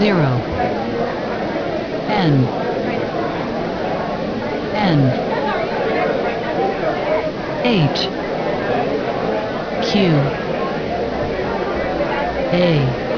zero N N H Q A